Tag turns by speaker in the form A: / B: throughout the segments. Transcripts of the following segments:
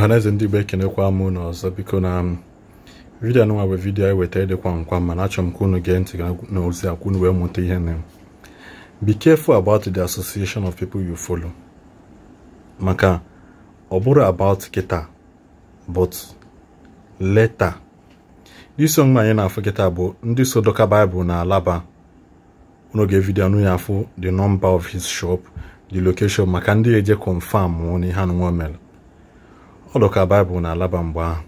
A: ọhaneze ndị igbo ekenekwa m ụnụ ọzọ biko na vidiyo anụnwa bụ vidio anyị e wetara dịkwa nkwa mana achọrọ m ka unu gee ntị na ozi a kwunu wee mụta ihe na be careful about the association of people you follow maka ọ bụrụ about kịta but leta isi onwe anyị na-afụ kịta bụ ndị so dọka baịbụl na alaba n'oge vidio anụ ya afụ the number of his shop the location maka ndị eje confam na ihe anụnwa mere ọ dị ka baịbụl na-alaba mgbe ahụ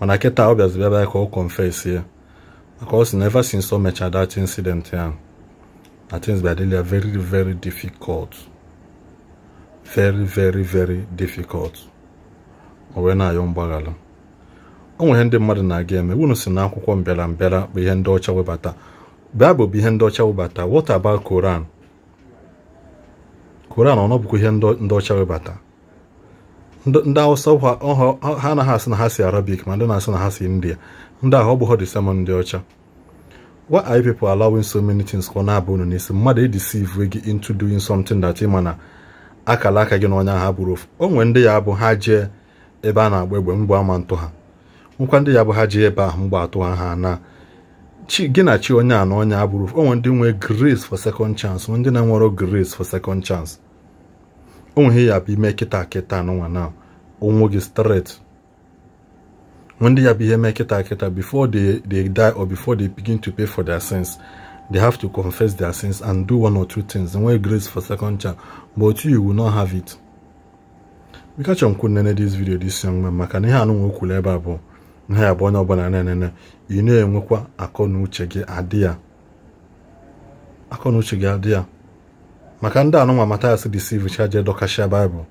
A: mana kịta ọ bịazi bịaba ka ọ confess ya maka ọ si na ever since o mechara that incident ahụ na things bịa dịla very very difficult very very very difficult ọ wee na-ayọ mgbaghara ọ nwere ndị mmadụ na-aga eme unu si na akwụkwọ mbịara mbịara bụ ihe ndị ọcha webata baịbụl bụ ihe ndị ọcha webata what about koran koran ọ nọbụkwa ihe ndị ọcha webata ndị awụsa ha anaghị asị na ha si arabik ma ndị na-asị na ha si india ndị ahụ ọ bụ hodisema ndị ọcha wa are people allowing so many things ka ọ na-abụ unu n'isi mmadụ edeceive gị into doing something that ịma na akala aka gị n'ọnya ha bụrụ ofu onwe ndị ya bụ ha jee ebe a na-agba egbe mgbe ama ntụ ha nkwa ndị ya bụ ha jee ebe ahụ mgbe atụ ha ha na gị na chi onye a na onye o onwe ndị nwere grace for second chance ndị na-enwero grace for second chance onwe ihe ya bụ ime kịta kịta n'ụwa na onwe gị straight ndị ya bụ ihe mee kịta kịta before they, die or before they begin to pay for their sins they have to confess their sins and do one or two things enwee grace for second chance but you will not have it bikacha m kwuru nene this video this young man maka na ihe anụ e nwe ebe a bụ nha ya onye ọbụla nenene ị na-enwekwa akọ na uche gị adị ya akọ na uche gị adị ya maka ndị anụnwa Matthias deceive chaje dọkashia Baịbụl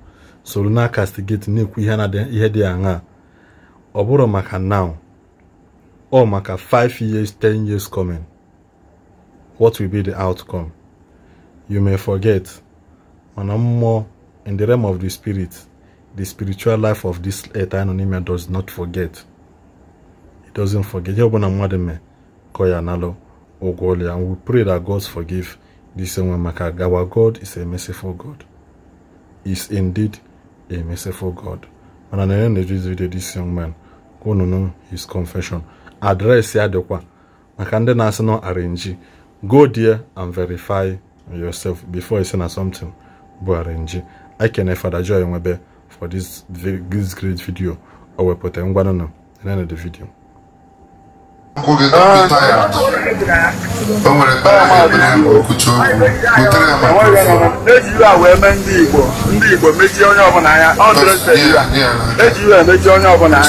A: soro na castigate na-ekwu ihe dị aṅa ọ bụrụ maka now ọ maka 5 years 10 years coming what will be the outcome you may forget mana mmụọ in the realm of the spirit the spiritual life of this earth anonyme does not forget it doesn't forget ihe ọbụla mmadụ mee ka ọ ya analụ ụgwọ ya we pray that God forgive This one, maka our God is a merciful God. Is indeed a merciful God. And at the end of this video, this young man, go no know his confession. Address ya Maka ndị na-asị nọ arrange. Go there and verify yourself before you say na something bụ arrange. I can Father Joy for this, this great video. O wepụta ngwanụ na the end of the video.
B: o nwere ejiwe a wee mee ndị Igbo ndị Igbo mechie onye ọbụla anya eji iwe emechie onye ọbụla anya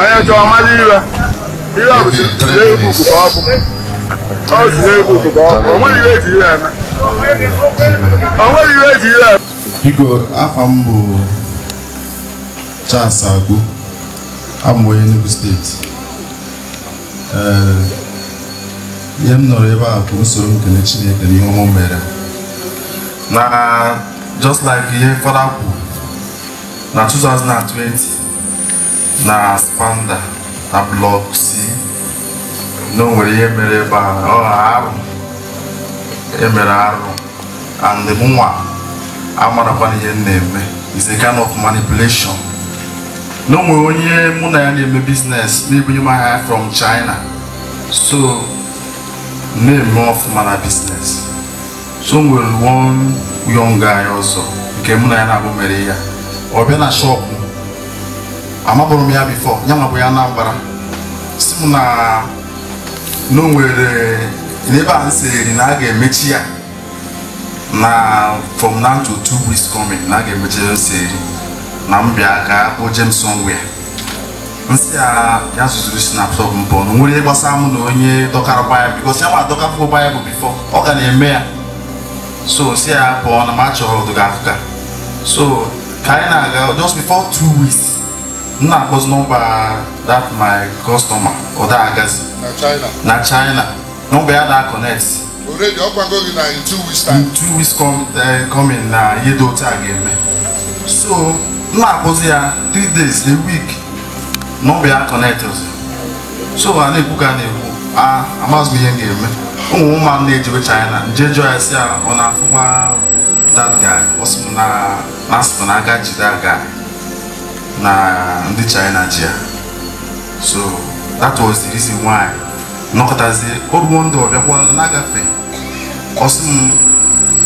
B: onye chọọ mara iwe iwe ọbụzi ka ọ bụ o
C: nweghị iwe steeti ihe m nọrọ ebe a bụ usoro nkele Chineke n'ihe ọmụ mere na just like ihe fada na 2020 na spanda na blọk C na ihe mere ebe a arụ emere arụ and mụnwa amarakwana ihe m na-eme is a kind of manipulation na onwe onye mụ na ya na-eme biznes na-ebunye m ahịa from China so na-eme ọfụma na biznes so nwere one young guy ọzọ nke mụ na ya na-abụ mere ya ọ bịa na shọpụ amabụrụ m ya bifo ya mabụ ya Anambra si m na o n'ebe a nsị eri na a ga-emechi ya na from now to two weeks coming na a ga-emechi ya nsị eri na mbịa ka akpọ Jemson wee nsị a ya zụziri snapshot m pụọ ah, na nwere gbasara mụ na onye dọkara gbaya bikos ya nwa adọkafuo gbaya bụ bifo ọ ga na-eme ya so nsị ya ah, pụọ na ma chọrọ ọdụga afụga so ka anyị na-aga just before two weeks m na-akpọzi nọmba that my customer ọ da agazi na China nọmba ya na connect
B: already ọgbago gị na in two
C: weeks time two weeks eh, coming na ihe dị otu a ga-eme so m na-akwụsị ya 3 days a week na ọ bụ so ha na-ekwu ka na-ekwu a amazụ ihe m ga-eme ụmụ ụmụ na-ejiwe China nje jụọ ya si ya ọ na-afụkwa that guy ọ sị m na asịpụ na aka jide aga na ndị China ji ya so that was the reason why nọkọtazie oruo ndụ ọbịakwa na-agafe ọ sị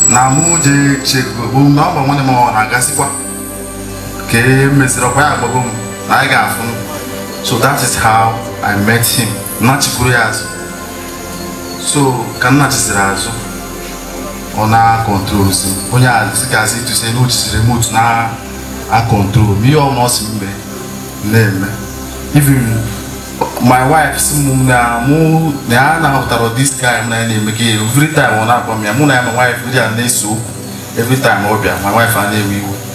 C: na mụ jee chego bụ na ọ bụ nwanne m ọ na-agasịkwa nke meziri ọkwa ya agbago m na anyị ga-afụ so that is how i met him nnachikwuru ya azụ so ka nnachisiri azụ ọ na-akọntrolzi onye azigazi duzie na ojiziri remote na-akọntrol ihe ọma ọ si mgbe na-eme even my wife si m na mụ na ya na-ahụtara this guy m na ya na-eme gị every time ọ na-agwa m ya mụ na ya ma wife ndị a na eso okwu every time ọ bịa my wife a na-ewe iwe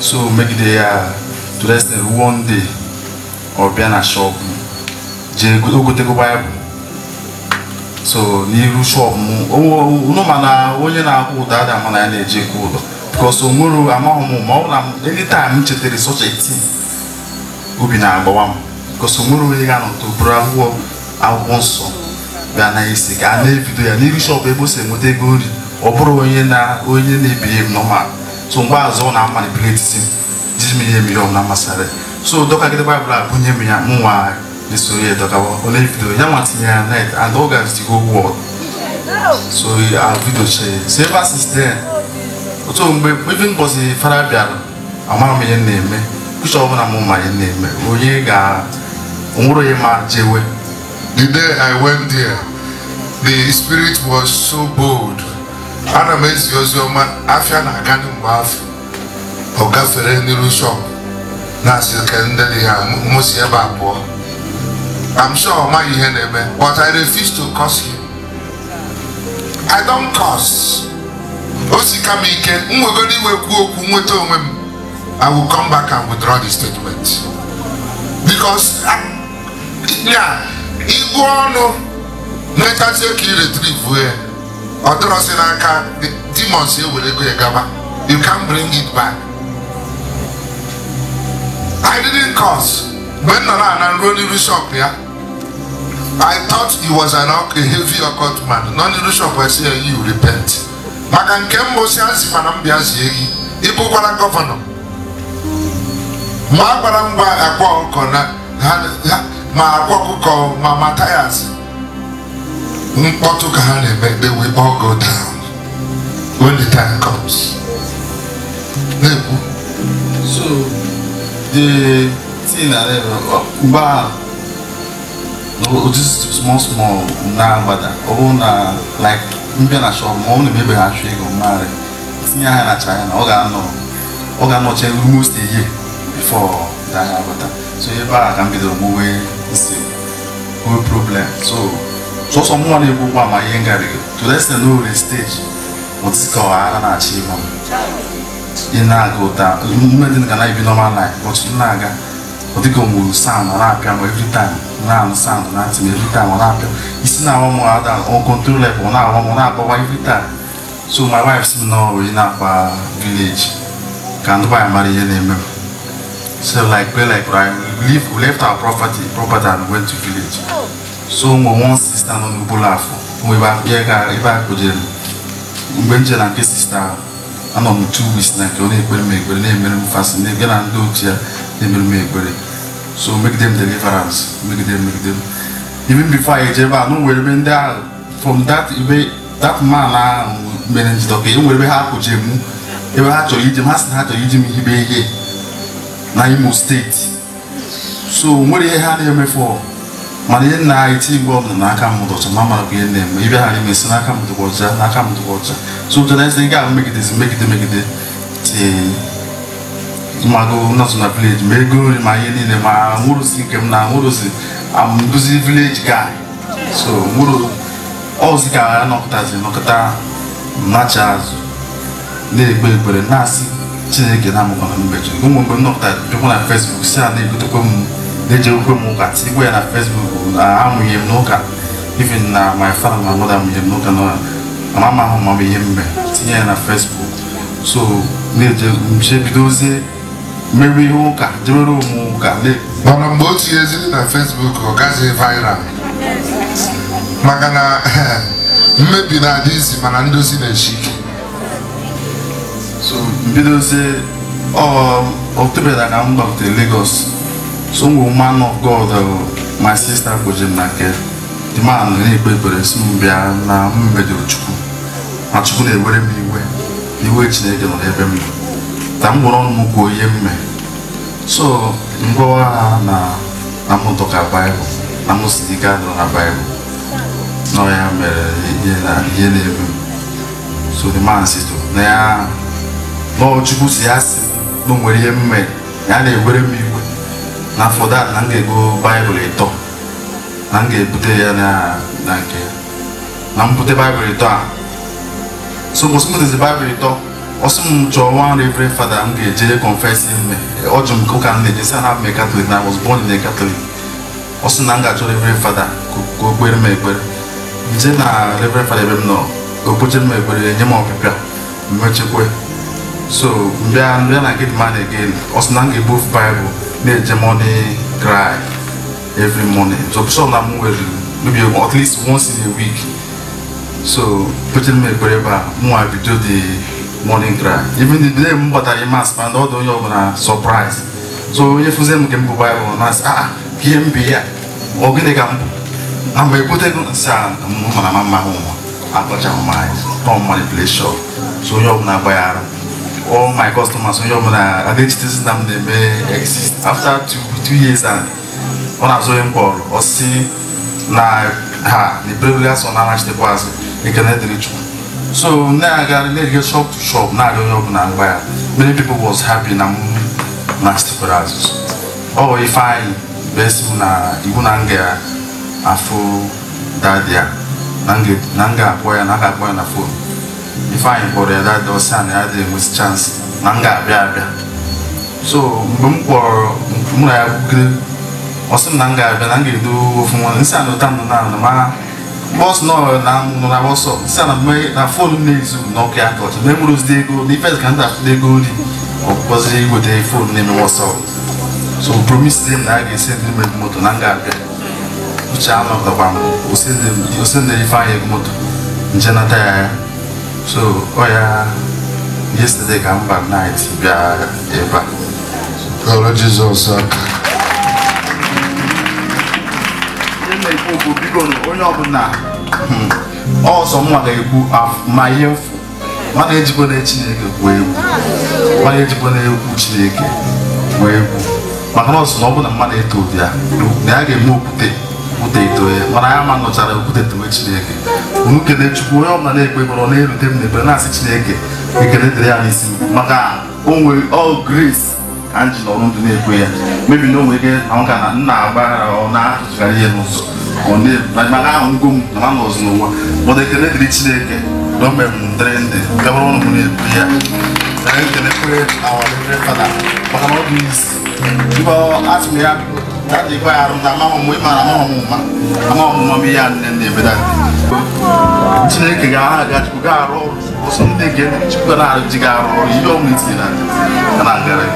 C: so make they uh, to rest them one day or be an shop je go go take bible so n'iru shop mu oh, oh, unu uh, oh, ma na onye na-akwụ ụda ada ma na ya na-eje because o nwere amaghị m ma ọ bụla anytime m chetara such a thing obi na-agbawa m because o nwere onye ga-anọ to bụrụ akwụkwọ akwụkwọ nsọ bịa na isi ka na-ebido ya n'iru shop ebe o si enweta ego nri ọ bụrụ onye na onye na-ebiri m normal so mgbaazụ na amanipuleti jizimihe mmiri ọbụla masịrị so dọkagide baịbụl a bunye m ya mụnwa na-esoro ya dọkawa ọ na-ebido ya nwa tinyere ya net and ọ gazi go wọd so a vidio chee so ebe since then otu mgbe even mbọsị fara bịara amara m ihe na-eme kucha ọbụla m ma ihe na-eme onye ga onwere onye ma jewe
B: the day i went there the spirit was so bold ana m ezi ozi ọma afia na-aga mgbe afọ ọ gafere n'iru shọpụ na-asị ke ndị ya mụsi ebe abụọ I'm sure ọ maghị ihe na-eme but I refuse to curse him I don't curse o si ka m ike m nwegoro iwe kwuo okwu nweta onwe m I will come back and withdraw the statement because ya igwe ọnụ nwetazie ka i retrieve ya ọdọrọsị n'aka demons ewere ego gaba you can bring it back I didn't cause mgbe m nọrọ ana nruo n'iru shop ya I thought he was an a heavy occult man nọ n'iru shop esi ya you repent maka nke mbụ si azị mana mbịa bịa zie gị ịbụkwara gọvanọ ma a gwara m gwa akwa ụkọ na ha ma akwa ọkụkọ ma ma tayas mkpọtụ ka ha na-eme they will all go down when the time comes na-ekwu
C: so the thing na mgbe a just small small na-agbada ọ bụrụ na like mbịa na shop ma ọ na emebe ha chụ ego mmarị tinye ha na china ọ ga-anọ ọ ga-anọchi almost a year before that ha so ebe a ka m bidoro mụwe nsị problem so so ọsọ mụnwa na-egbu ụgbọ ama ihe ngarịgo tudesi na owere steji mụtịkọwa ara na-achị ihu ị In aga ụta ume dị ga na-ebi normal life but in na-aga ọ dịka mụrụ sound ọ na every time now sound na-atị m every time on na-apịa isi na-awa m ada on control level ọ na-awa m ọ every time so my wife's si in na village Can't buy nwanyị mara ihe so like play like we left our property property and went to village so mo wan sista no mi bula afọ mo ebe a ga ebe akpụjere mgbe m jere na nke sista anọ m two weeks na nke ọ na-ekpere m ekpere na-emere m fasi na na ndị ochie ya na-emere m ekpere so megide m deliverance megide m megide m even before anyị eje ebe a na nwere ebe ndị ahụ from that ebe that man ahụ mere njidọ ka e nwere ebe ha akpụje m ebe ha chọrọ ije m ha sị na ha chọrọ iji m hibe ihe na imo steeti so nwere ihe ha na-emefu mana ihe nna anyị ti igwe ọbụla n'aka mmadụ ọzọ ma mara ihe na-eme ibe ghara ime si n'aka mmadụ ọzọ n'aka mmadụ ọzọ so ụjọ na-esi ị ga megidezi megide megide tii. mmadụ nọzụ na vileji ma ego nri ma ihe niile ma nwụrụzi nke m na nwụrụzi amduzi vileji gai so nwụrụ ọzi ka ya nọkọtazi nọkọta nacha azụ na ekpe ekpere na-asị chineke na-amụkwana mbeji ụmụ mgbe m nọkọta jụkwa na fesbuk si a na-egotekwa m na-ejewukwe m ụka tikwa ya na fesbuk na amụghị m n'ụka even na my father na mother amụghị m n'ụka na mama ahụ ma m ihe mbe tinye ya na fesbuk so na eje bidozie
B: mere ihe ụka jebere ụmụ ụka mana mgbe o tinyeziri na fesbuk ọ gaghị viral maka na mmebi na-adị izi mana ndozi na-echi ike so mbidozie ọ oh,
C: oktobera ka m gbabutere Lagos so man of God oh, my sister kpoji m na nke dị ma ekpere si na m mejọrọ chukwu ma na-ewere m iwe iwe chineke nọ n'ebe m m ọnụ m ihe mme so na mụtọka baịbụl na mụsị ike adịrọ na baịbụl nọ ya mere so the man si oh, na ya chukwu si ya si na o nwere ihe mme ya na-ewere m iwe na afọ na m ga-ego baịbụl ịtọ na m ga-ebute ya na nke na m bute baịbụl ịtọ a so mbọsị m butezi baịbụl ịtọ ọsọ m chọọ nwa reverend fada m ga-eje confess ime ọ jụ m ụka m na-eje si na m katọlik na was born in katọlik ọ sị na m ga-achọ reverend fada ka o kpere m ekpere nje na reverend fada ebe m nọ ka m ekpere nye m ọbịbịa mmechekwe so mbịa mbịa na gate man again ọ sị na m ga-ebu ofu baịbụl na-eje money cry every morning so so na m nwere maybe at least once in a week so kpechere m ekpere ebe a mụnwa bido the morning drive even the day m i mas ma na ọ dị onye ọbụla surprise so onye fụzie m nke mbụ baịbụl na ah a ah, ihe m bi ya ọ gịnị ka mbụ na mgbe ekwutegụ nsị a mara ma mma ụwa akpọcha mma anyị so onye ọbụla gbaghara all my customers onye ọbụla adịchitesi na m na-eme exist after two years and ọ na-azụ onye mkpọrọ ọsị na ha na iberebere asọ na anachitekwa azụ ekene dịrị chukwu so na-aga na-ege shop to shop na-aga onye ọbụla ngwa ya many people was happy na m na sitekwara azụ ọ ifeanyị bụ esi m na iwu na nga ya afụ dadi ya na nga akpọ ya na a akpọ ya na fon ifeanyị kpọrọ ya dada ọsị na ya dị enwesị chansị na m ga-abịa abịa so mgbe m kpọrọ mụ na ya bugide ọsị m na m ga-abịa na m ga-edo ofu nwa nsị anọta nọ na ma bọs nọ na nọ na wọsọ nsị na mme na fon na-ezu n'ọkụ ya ka ọchị na emụrụzide ego na ife ka ndị ego nri ọkpọzi iweta fon na-eme wọsọ so promise dem na a ga-esi ndị mmiri moto na m ga-abịa uche anọtakwa m osende ifeanyị ego moto nje nata ya ya so oh yeah. yesterday ka mba night bịa ebe a
A: kọrọ jizọs aka
C: na-ekwu okwu biko onye ọbụla ọsọ mma ga-ekwu ma ihe mfu mana ejikwa na chineke gwuo egwu mana ejikwa na egwu chineke gwuo egwu maka na ọsọ na ọbụla mmadụ eto ụdị ya na ya ga-eme okwute ito ya mana ya ma nọchara okwute towe chineke unu kelee chukwu onye ọbụla na-ekpe ọ na-erute m na-asị chineke ekele dịrị ya n'isi maka onwe nwere ọ ka m ji ndụ na-ekwe ya mebi na onwe nwere ike ahụ na nna agbara ọ na ihe n'ụzọ maka ahụ m na n'ụwa ekele chineke m ndị gabara ọnụ m na ya maka na ọ isi ya tadi ko yarum ta ma mo ma ma mo ma ma mo mi ya nen de be da c a ke ga ga ku ga ro o sun de ge ci k a na ji ga ro y a mi ti na kana ga re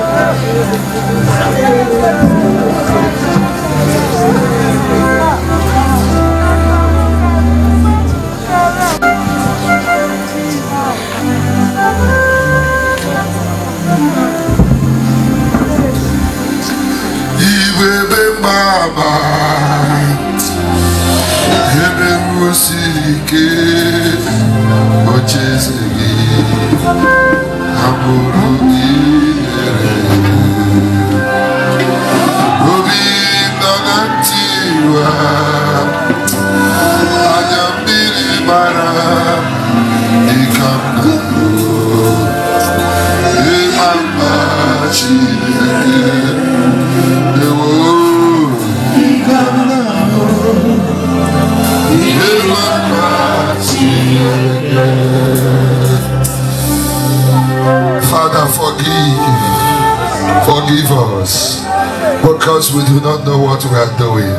B: because we do not know what we are doing.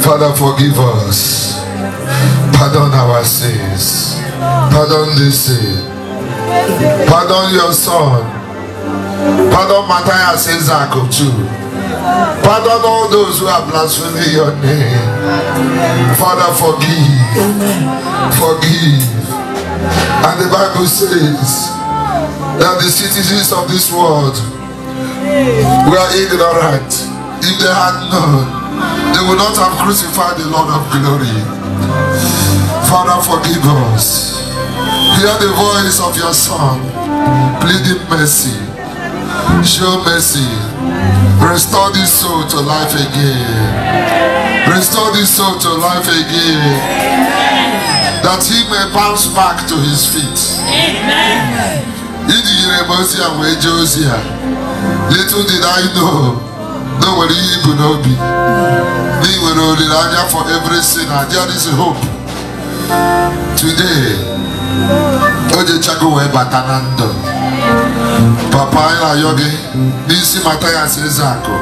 B: Father, forgive us. Pardon our sins. Pardon this sin. Pardon your son. Pardon Matthias Isaac of Pardon all those who have blasphemed your name. Father, forgive. Forgive. And the Bible says that the citizens of this world We are ignorant. If they had known, they would not have crucified the Lord of glory. Father, forgive us. Hear the voice of your Son, pleading mercy. Show mercy. Restore this soul to life again. Restore this soul to life again that he may bounce back to his feet. Amen. little did I know na o nwere ihe ibu n'obi na ị nwere olileanya for every sin there is hope today o jechago wee bata na ndụ papa anyị na n'isi mata ya eze akụ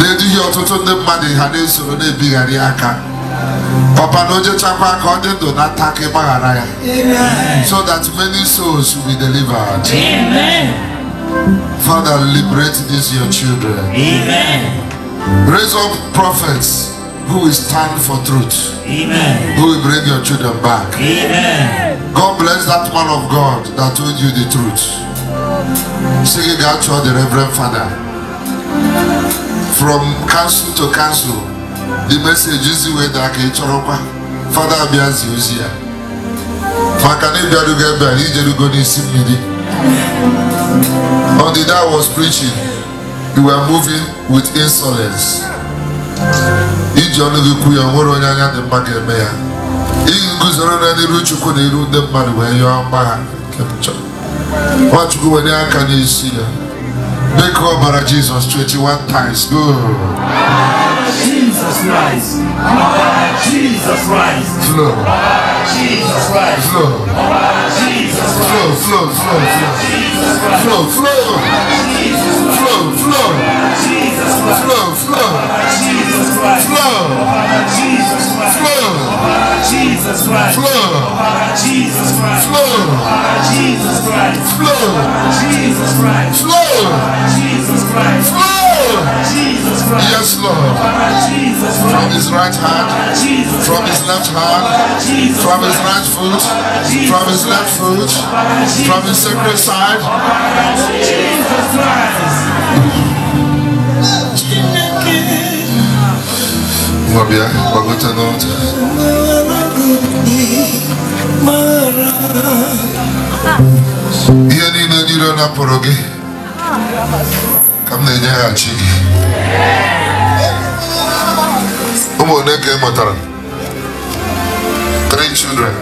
B: na-eduhie ọtụtụ ndị mmadụ ha na-esoro na aka papa na ojechakwa ka ọ dị ndụ na ntaka ịgbaghara ya so that many souls will be delivered. Amen. Father, liberate these your children. Amen. Raise up prophets who will stand for truth. Amen. Who will bring your children back. Amen. God bless that man of God that told you the truth. Sing it out to the Reverend Father. From council to council, the message is the way that I Father Abiazi Uzia. Fakane Biaduga Biaduga to Midi. Amen. On the day I was preaching, you were moving with insolence. Iji ọnụgịkwu ya nwere onye anya dị mma ga-eme ya. Ị guzoro na n'iru Chukwu na iru ndị mmadụ wee yọọ mgbagha nke m chọrọ. Nwachukwu were aka n'isi ya. Make ọbara Jizọs 21 times. Good. Jesus Christ. Lord Jesus Christ. Lord Jesus Christ. Lord Jesus Christ. Slow, slow, slow, slow, flow, flow. slow, slow, slow, slow, slow, slow, slow, slow, Jesus Christ. slow, Jesus Christ. slow, Jesus Christ. slow, Jesus Christ. slow, Jesus Christ. slow Yes, Lord. From his right hand, from his left hand, from his right foot, from his left foot, from his sacred side. Mwabia, wagote ka m na-enyeghachi gị ụmụ one ka ị mụtara three children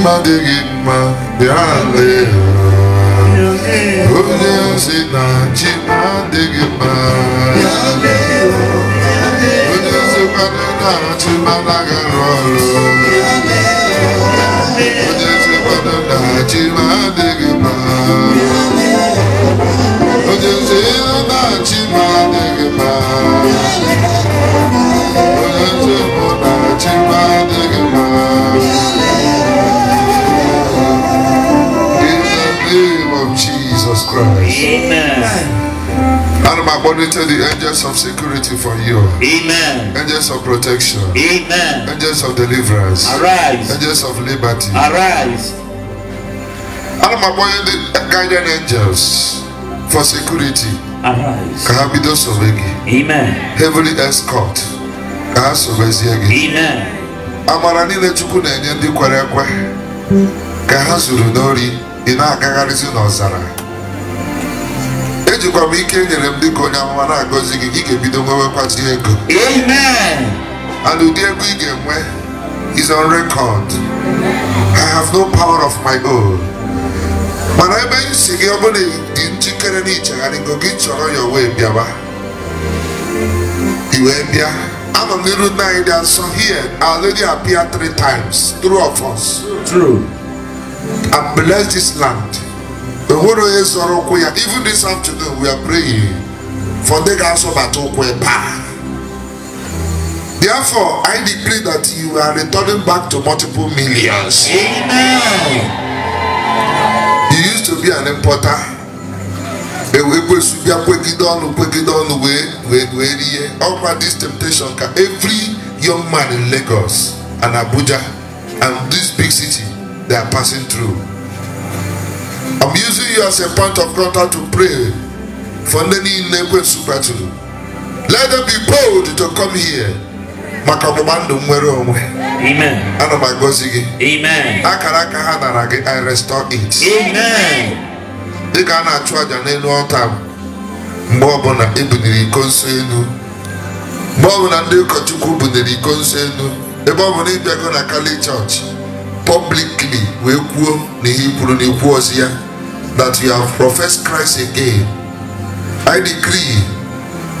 B: mma bịa onye ozi na chi adịghị mma onye ozi na chi ọrụ Unmagnified the angels of security for you. Amen. Angels of protection. Amen. Angels of deliverance. Arise. Angels of liberty. Arise. Unmagnified the guiding angels for security. Arise. Kahabido Sobegi. Amen. Heavenly escort. Kahasobeziegi. Amen. Amara niile Chukwu na-enye ndị kwere ekwe ka ha zuru n'ori ị na-agagharịzi n'ọzara jikwa m ike e nyere m dịka onye amụma na-agọzi gị gị ga-ebido nwewekwazi ego and ụdị ego ị ga-enwe is on record I have no power of my own mana ebe m si gị ọ bụrụ dị njikere na ichegharịgo gị chọrọ ya wee bịaba i wee bịa anọ n'iru nna anyị dị nsọ here our lady appeared three times through of us true and bless this land ehoro yɛ sɔrɔ ko ya even this afternoon we are praying for the gas of atokwe paa therefore i declare that you are returning back to multiple millions amen you used to be an importer ewe kwesu bịa kwegide ọnụ kwegide ọnụ wee wee wee rie ọkwa this temptation ka every young man in lagos and abuja and this big city they are passing through. Am using you as a point of contact to pray for ndị niile ekwensu kpatụrụ let them be bold to come here maka ọgbụgba ndụ nwere onwe ana m agọzi gị akara aka ha nara gị i restore it dị ka a na-achụ aja n'elu ọta mgbe ọbụla ebuniri iko nso elu mgbe ọbụla ndị ụkọchukwu bunyere iko nso elu ebe ọ bụ na ịbịago na kali chọọchị wee kwuo na ihe kwuru na ikwu ozi ya that you have professed Christ again I decree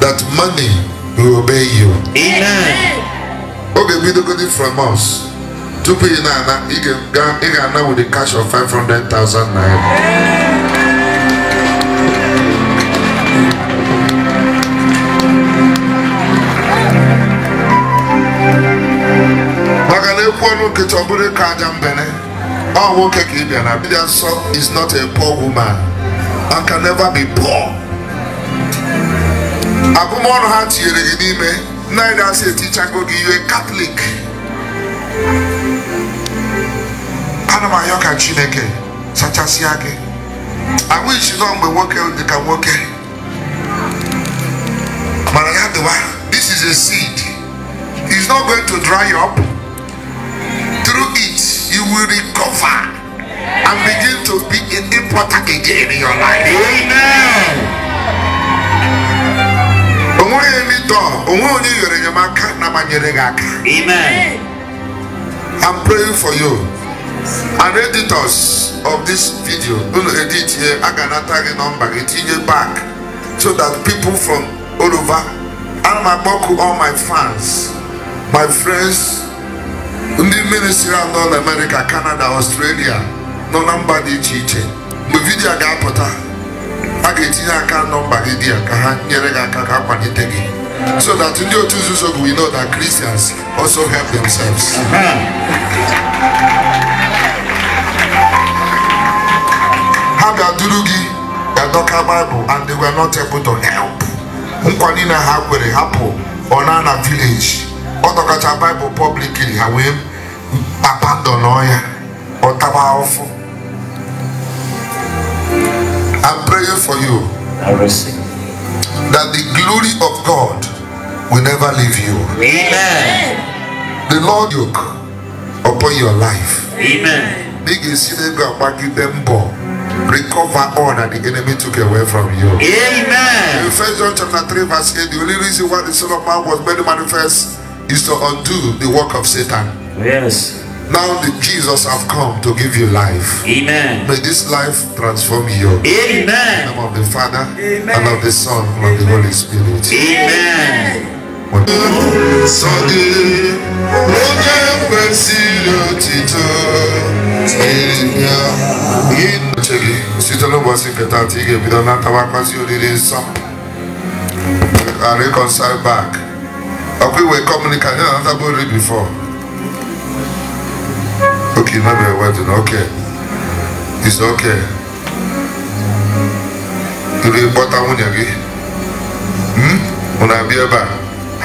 B: that money will obey you amen oge bidogodi from us tupu ị na-ana ị ga-ana with the cash of 500,000 naira maka na ekwu ọnụ nkịta ọ bụrụ ka aja mbene Oh, nwoke ka ị bịara bịa nsọ is not a poor woman and can never be poor. Agụmọnụ ha has to n'ime neither ya "Teacher, etichago give you a Catholic. Ana m ayọ ka Chineke sachasịa gị. Ahụ isi nọ mgbe nwoke dị ka nwoke. Mara this is a seed. It's not going to dry up through it. you will recover and begin to be an importer again in your life. Amen. onwe onye mitọ onwe onye nyere enyemaka na manyere gị Amen. I'm praying for you. and editors of this video unu edit here a ga-anata gị nọmba gị tinye back so that people from all over and my akpọku all my fans my friends ndị ministri a nọ n'amerika kanada ọstrelia nọ na mba dị iche iche mgbe ga-apụta a ga-etinye aka nọmba gị dị ya ka ha nyere gị aka ka akwalite gị so that ndị otu nzuzo bụ we know that Christians also help themselves ha ga-aduru gị ga-adọka Bible and they were not able to help nkwa na ha kwere hapụ ọ na village i dọkacha baịbụl pọblikiri ha i I'm praying for you that the glory of God will never leave you. Amen. The Lord yoke upon your life. Amen. Recover all that the enemy took away from you. Amen. In 1 John chapter 3, verse 8, the only reason why the Son of Man was made manifest is to undo the work of Satan. Yes. Now that Jesus have come to give you life. Amen. May this life transform you. Amen. In the name of the Father Amen. and of the Son and Amen. of the Holy Spirit. Amen. i reconcile back akwiwe communicant na another boy read before okay no be wedding okay it's okay ire kpọta nwunye gị unu abịa ebe a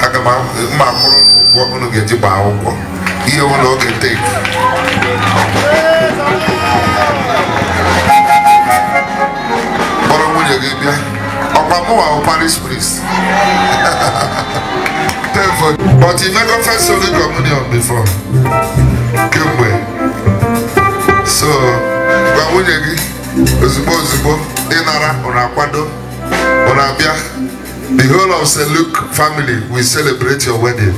B: aga m mma akwụrụ ụgwọ unu ga-eji gbaa akwụkwọ ihe ụlọ oge tek kpọrọ nwunye gị bịa ọkwa mụwa bụ paris prince there for you. But you never first Holy Communion before. Kemgbe. So, gwa nwunye gị ozugbo ozugbo ịnara ụna akwado ụna abịa. The whole of St. Luke family will celebrate your wedding.